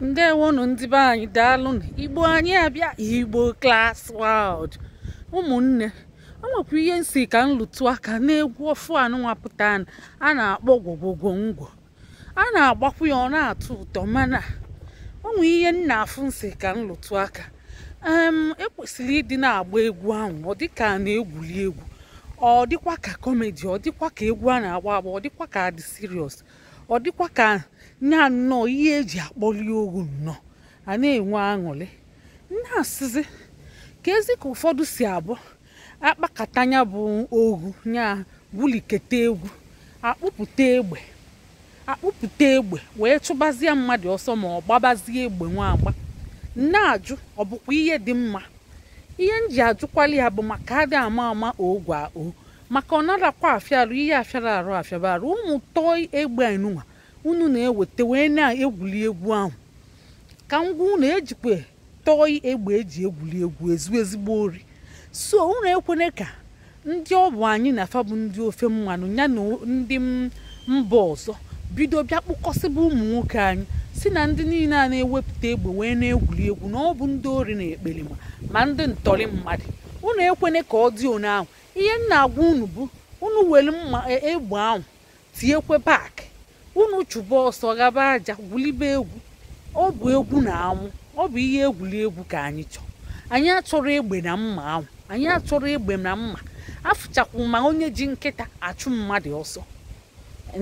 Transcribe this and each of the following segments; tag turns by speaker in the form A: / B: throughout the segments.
A: ndewonu ndị be anyị na igbo anyị abịa igbo class wald ụmụnne o nwekwa ihe nsi ka nlụtụ aka na-egwu ofu anụnwapụta a na-akpọ gwogwogwongwo a na-agbakwu ya ọ na-atọ ụtọ mana onwe ihe nna afụ nsi ka nlụtụ aka ekwesịrị e ịdị na-agba egwu ahụ ọ dịka a na-egwuli egwu ọ dịkwa ka kọmedi ọ dịkwa ka egwu a na-agba agba ọ dịkwa ka adị seriọs ọ dịkwa ka nya nnọọ ihe eji akpọli ohu nnọọ a na-enwe aṅụrị na-asịzi ka ezi ka ụfọdụ si abụ akpakata nya bụ ohu nya buliketa egwu akpụpụta egbe akpụpụta egbe wee chụbazie mmadụ ọsọ ma ọ gbabazie egbe nwa agba na-ajụ ọ bụkwa ihe dị mma ihe m ji ajụkwali ya bụ maka adị ama ama ogwe o maka ọ narakwa afịarụ ihe afịara arụ afịaba arụ ụmụ tọọ egbe enunwa unu na-eweta wee na-egwuli egwu ahụ ka ngwa unu ejikwe tọị egbe eji egwuli egwu ezu ezigbo ori so unu ekwene ka ndị ọ bụ anyị na fabụ ndị ofe mmanụ ya na ndị mba ọzọ bido bịa kpụkọsịbụ ụmụ nwoke anyị si na ndị niile a na-ewepụta egbe wee na-egwuri egwu na ọ bụ ndị ori na ekpere ma ndị ntọrị mmadụ unu ekwene ka ọ dị one ahụ ihe na agwa unu bụ unu were mma e, egbe ahụ tinyekwe bak unu chụba ọsọ gaba aja gwulibe egwu ọ bụ egwu na anwụ ọ bụ ihe egwuli egwu ka anyị chọọ anyị atụrụ egbe na mma anwụ anyị atụrụ egbe na mma afụchakwu ma onye ji nkịta achụ mmadụ ọsọ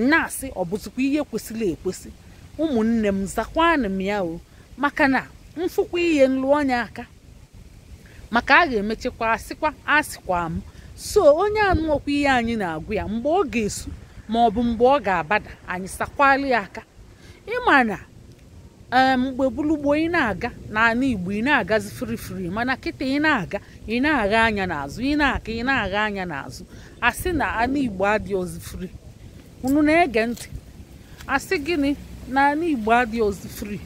A: na-asị ọ bụzikwa ihe kwesịrị ekwesị ụmụnne m zakwanụ m ya o maka na mfụkwa ihe nlụ aka maka a ga-emechekwa asịkwa asịkwa m so onye anụ ọkwa ihe anyị na-agụ ya mgbe ọ ga-esu ma ọ bụ mgbe ọ ga-abada anyị sakwalụ ya aka ịma na mgbe gburugburu ị na-aga n'ala Igbo ị na-agazi firifiri mana kịta ị na-aga ị na-agha anya n'azụ ị na-aga na-agha anya n'azụ asị na ala Igbo adịghị firi unu na-ege ntị asị gịnị na ala Igbo adịghịzi firi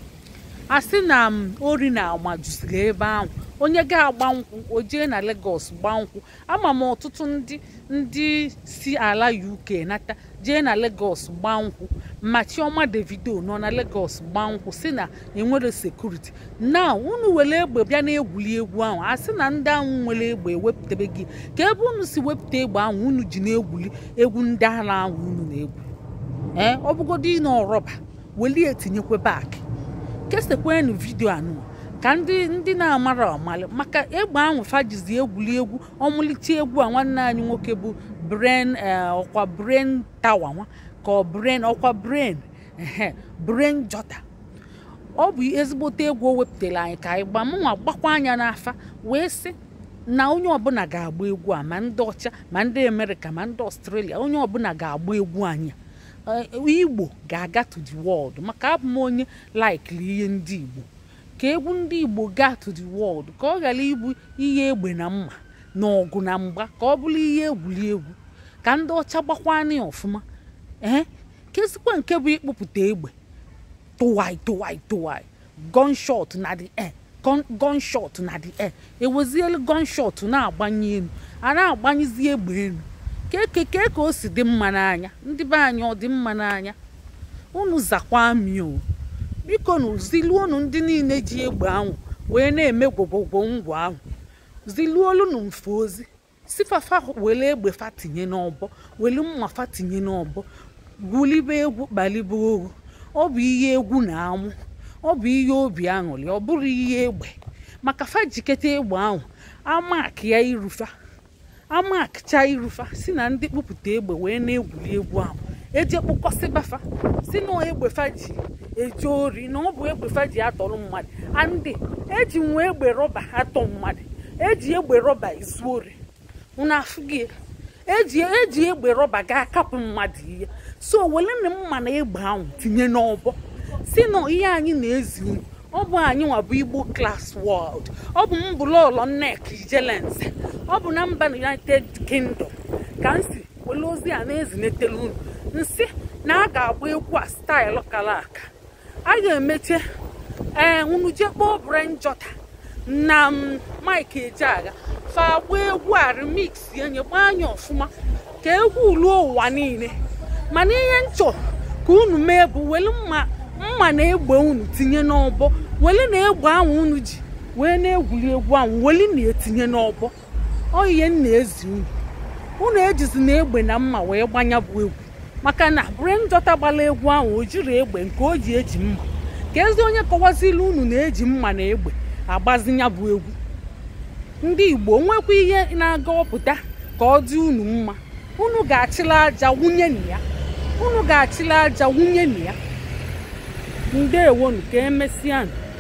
A: asị na ori na juziri ebe ahụ onye ga-agba nkwụ o jee na Lagos gbaa nkwụ ama m ọtụtụ ndị ndị si ala UK nata jee na Lagos gbaa nkwụ ma Chioma Davido nọ na Lagos gbaa nkwụ si na enwere sekuriti na unu were egbe bịa na-egwuli egwu ahụ a sị na ndị ahụ nwere egbe ewepụtebe gị ka ebe unu si wepụta egbe ahụ unu ji na-egwuli egwu ndị ala ahụ unu na-egwu ee eh, ọ bụgodị na ọrọba welie etinyekwebe akị kesekwenụ vidio anụ ka ndị ndị na-amara ọmalụ maka egbe ahụ fajizi egwuli egwu ọmụlite egwu a nwanne anyị nwoke bụ bren eh, ọkwa bren tawa nwa ka ọ bren ọkwa bren bren jọta ọ bụ ezigbote egwu o wepụtara anyị ka anyị gbaa mụnwa gbakwa anya n'afa wee sị na onye ọbụla ga-agba egwu a ma ndị ọcha ma ndị amerịka ma ndị ọstrelia onye ọbụla ga-agba egwu anyị eh, igbo ga-aga to the world maka abụ m onye laikili ihe ndị igbo ka egwu ndị Igbo gaa to the world ka ọ ghara ịbụ ihe egbe na mma na ọgụ na mgba ka ọ bụrụ ihe egwuregwu ka ndị ọcha gbakwana ya ọfụma ee eh? kezikwa nke bụ ịkpụpụta egbe tụwai tụwai tụwai gunshot na the air gunshot na the e ewezielu gunshot na-agbanye elu a na-agbanyezi egbe elu keke ka o si dị mma n'anya ndị be anyị ọ dị mma n'anya unu zakwa mio biko na ziluonu ndị niile ji egbe ahụ wee na-eme gwogwogwo ngwa ahụ ziluolunu mfe ozi sifafa fafa were egbe fa tinye n'ọbọ were mma fa tinye n'ọbọ gwulibe egwu kpalibe ohu ọ bụ ihe egwu na anwụ ọ bụ ihe obi aṅụrị ọ bụrụ ihe egbe maka fajiketa egbe ahụ amak ya irufa amakcha irufa si na ndị kpụpụta egbe wee na-egwuri egwu ahụ eji gbafa si na egbefa ji eji ori na ọ bụ egbefa ji atọrọ mmadụ andị eji nwa egbe rọba atọ mmadụ eji egbe rọba ezu ori eji eji egbe rọba ga kapụ mmadụ ihe so welena mma na egbe ahụ tinye n'ọbọ si na ihe anyị na-ezi unu ọ bụ anyị nwabụ bụ igbo klas wọld ọ bụ mbụlọlọ nek jelense ọ bụ na mba united kingdom ka m si wele a na-ezinetela unu nsị na a ga-agba egwu a staịlụ kala aka a ga-emeche ee eh, unu jee kpọọ Brian Jota na mm, Mike Ejeagha fa agba egwu a remix ya nyekwa anya ọfụma ka egwu ruo ụwa niile mana ihe nchọ ka unu mee bụ wele mma na egbe unu tinye n'ọbọ wele na egbe ahụ unu ji wee na-egwuri egwu ahụ weli na-etinye n'ọbọ ọ ihe m na-ezi unu unu ejizi na egbe na mma wee gbanya bụ egwu maka na brenjọta gbara egwu ahụ o jiri egbe nke o ji eji mma ka ezi onye kọwazila unu na-eji mma na egbe agbazi bụ egwu ndị igbo nwekwa ihe na-aga ọpụta ka ọ dị unu mma unu ga-achịla aja wunye na ya unu ga-achịla aja wunye na ya ka e